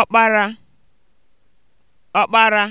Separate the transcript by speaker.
Speaker 1: ọkpara ọkpara